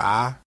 a